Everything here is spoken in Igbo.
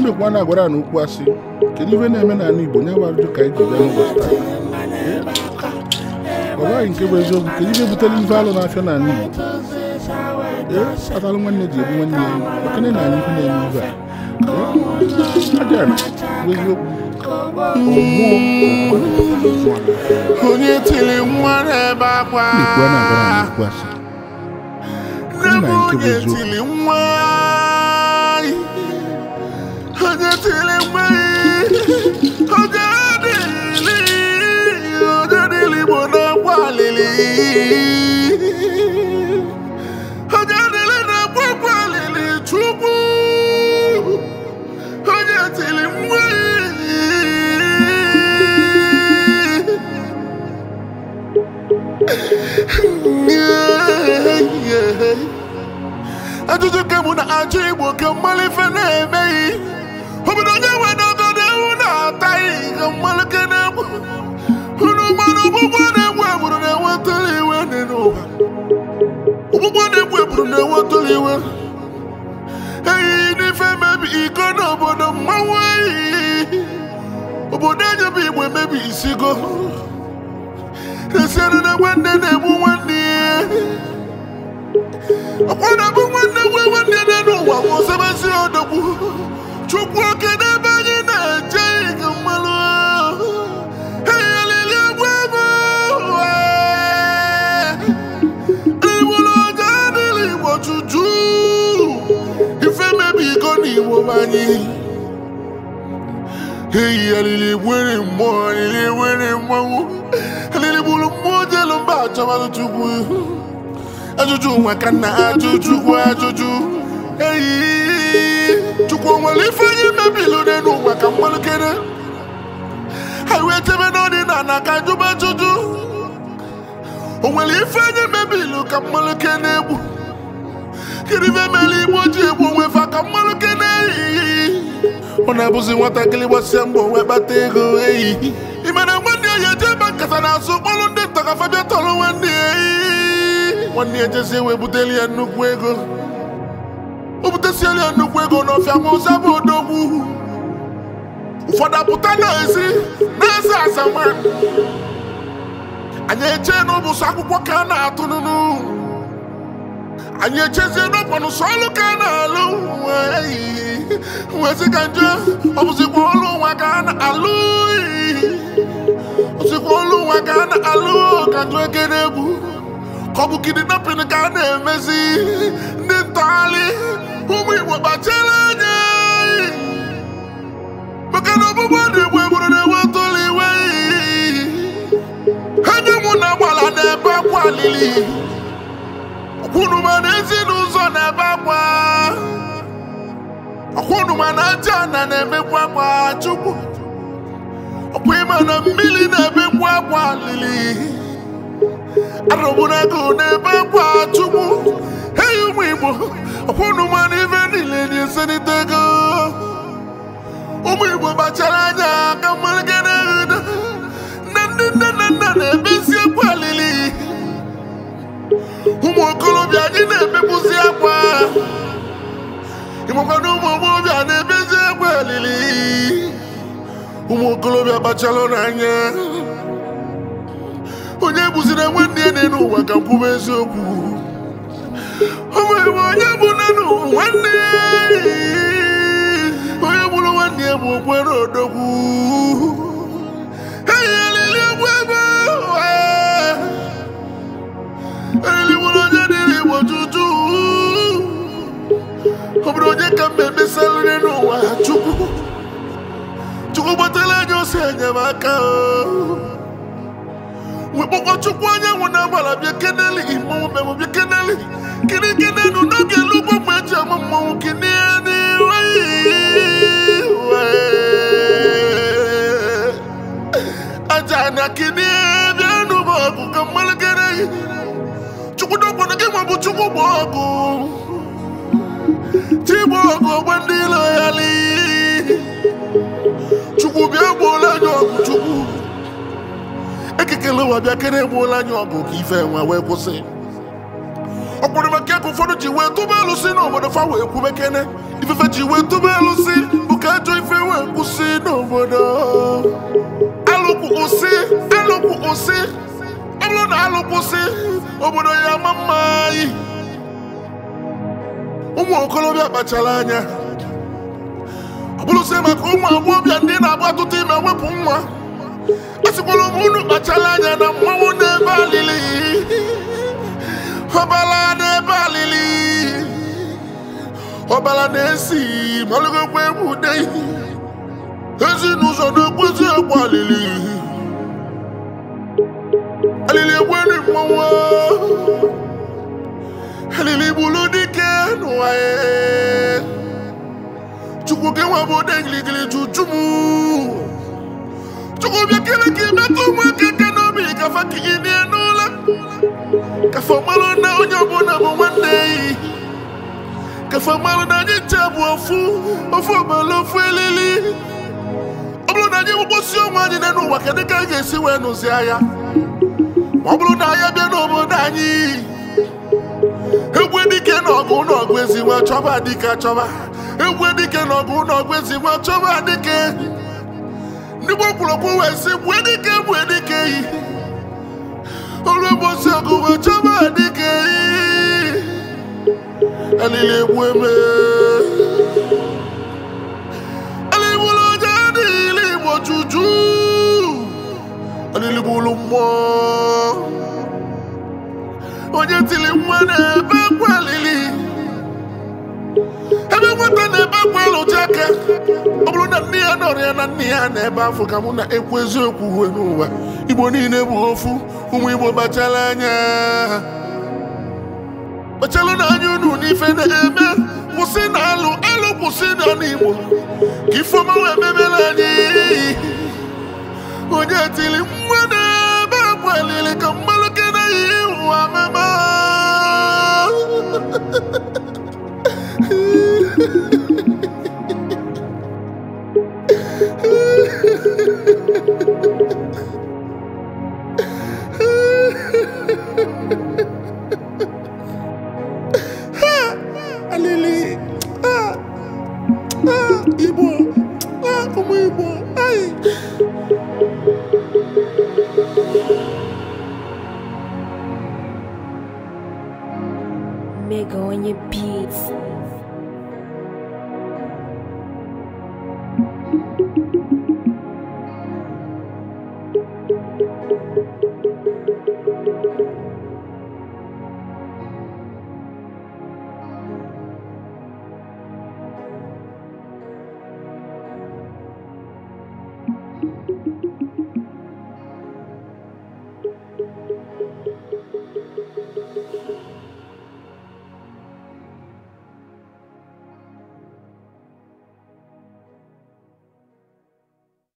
ndekwa na-agwara na ukwu asị kedu ihe na-eme n'ala Igbo nya gwara ka anyị ji bịa n'ụbọchị taa ọ gwaghị nke bụ eziokwu kedu ihe butere ihe alụ na-afịa n'ala Igbo ee atalụ nwanne ji ebu nwanne ya ekene na anyị ihe na-eme ibe a abịara bụ eziokwu onye tiri nwa n'ebe akwa na nke bụ eziokwu ele mgbe na-enwetụla iwe ehi n'ife mebi iko na obodo mmanwụ ehihie obodo enyebe igbo emebi isigo esiere na nwanne na-egbu nwanne ya na-abụ nwanne nwe nwanne ya n'ụwa ma osebezi odogwu chukwu Hey, alili wele mwa, alili wele mwa Alili bulu mwa elu mba chabalo chubu Ajuju wakana, ajuju wa ajuju Hey, chukwa walifanya mebilo nenu onye kene Highway tebe noni nana kajuba kedu ife mere igbo ji egbu onwe fa ka mmanụ ke na-eyi ọ na-abụzi nwatakịrị gbasịa mbọ wee kpata ego eyi imere nwanne ya eje ebe nkata na-azụ kpọrụ ndị nta fabia tọrọ nwanne ya eyi nwanne ya jezi wee buteli ya nnukwu ego o butesiela ya nnukwu ego n'ọfịa ma ọzọ bụ odogwu ụfọdụ apụta n'ezi na-eze azama anyị eche n'ụbụsụ akwụkwọ ka a na-atụnụnụ atụ anyị echezie n'ọkwanụ sọ ọlụ ka na-alụ wezi ka nje ọ bụzikwa ọlụ nwa ka a na-alụ ozikwa ọlụ nwa ka a na-alụ ka njụ ekere egwu ka ọ bụ kidnapping ka a na-emezi ndị ntọgharị ụmụ igbo kpachara anya maka na ọgbụgbọ dị igbo egburu na-enwe tụlụ iwe enyi mụ na gbara na-ebe akwa alili unu ma na ezinụzọ na-ebe akwa ọkwa unu ma na aja ana na-emekwa akwa chukwu ọkwa ịma na mmiri na-emekwa akwa lili arụbụnago na-ebe akwa chukwu eyi ụmụ igbo ọkwa unu ma na ife niile na-eselite ego ụmụ igbo gbachara anya ka mmadụ obi akpachala n'anya onye bụziri nwanne ya dị e n'ụwa ka kwube eziokwu o onye bụ nwanne onye bụrụ nwanne ya bụ okwe n'odogwu eyelili onye dị ọ bụrụ onye ka mbe emesarịrị n'ụwa gosi enyemaka wekpọkpọ chukwu anyanwụ na-agbara bịa keneli gị mmọnwụ bịa keneli kiri n'oge eji ama mmọnwụ gị n'ihe n'iwe aja anya gị n'ihe bịa ka gere chukwu gị chukwu ndị ilo ya chukwu bịa egbuola anyị ọgụ chukwu ekekele ụwa bịa kere egbuola anyị ọgụ ka ife enwe wee kwụsị ọ bekee ka ụfọdụ ji wee tụba elu si n'obodo fa wee kwube kene ifefe ji wee tụba elu si bụ ka ajọ ife wee kwụsị n'obodo alụkwụ kwụsị ọ bụrụ na alụ obodo ya ama mma anyị ụmụ okorobịa kpachara anya bụrụzie maka ụmụ agbọghọbịa ndị na-agba ọtụtụ ime wepụ nwa esikwala m unu kpachala anya na mmanwụ n'ebe alili ọbala n'ebe alili ọbala na-esi malụgokwa egwu ude ezinụzọ na-ekpozi egwu alili alili egweri mmanwụ alili gbulu dị ọgwụ gị nwa bụ ode ngirigiri juju m chukwu bịa kere ka ịmetụ ụmụaka aka n'obi kafa ka gị nie n'ụla kafa marụ na onye ọbụla bụ nwanne yi kafa marụ na anyị nche bụ ofu ofu ọbala ofu elili ọ bụrụ na anyị gbụkpọsi onwe anyị na n'ụwa kedu ka anyị ga-esi wee nụzi anya ma ọ bụrụ na anyị bịa n'obodo anyị Egwu dike na ọgụ na ọgụ eziwe chọba dike chọba egwu dike na ọgụ n'ọgụ ezigbo chọba dike ndị Igbo kwuru okwu wee sị gbue dike gbue dike yi olu bosi ọgụ wee chọba dike yi alili egbu emee nọrọ ya na nne ya na ebe afọ ka mụ na-ekwu eziokwu uwe n'ụwa igbo niile bụ ofu ụmụ igbo kpachala anya kpachala na anya unu n'ife na-eme kwụsị na alụ alụ kwụsị na n'igbo ka ifeoma wee mebere anyị onye tiri nwa na ebe akwa ka m e e a a a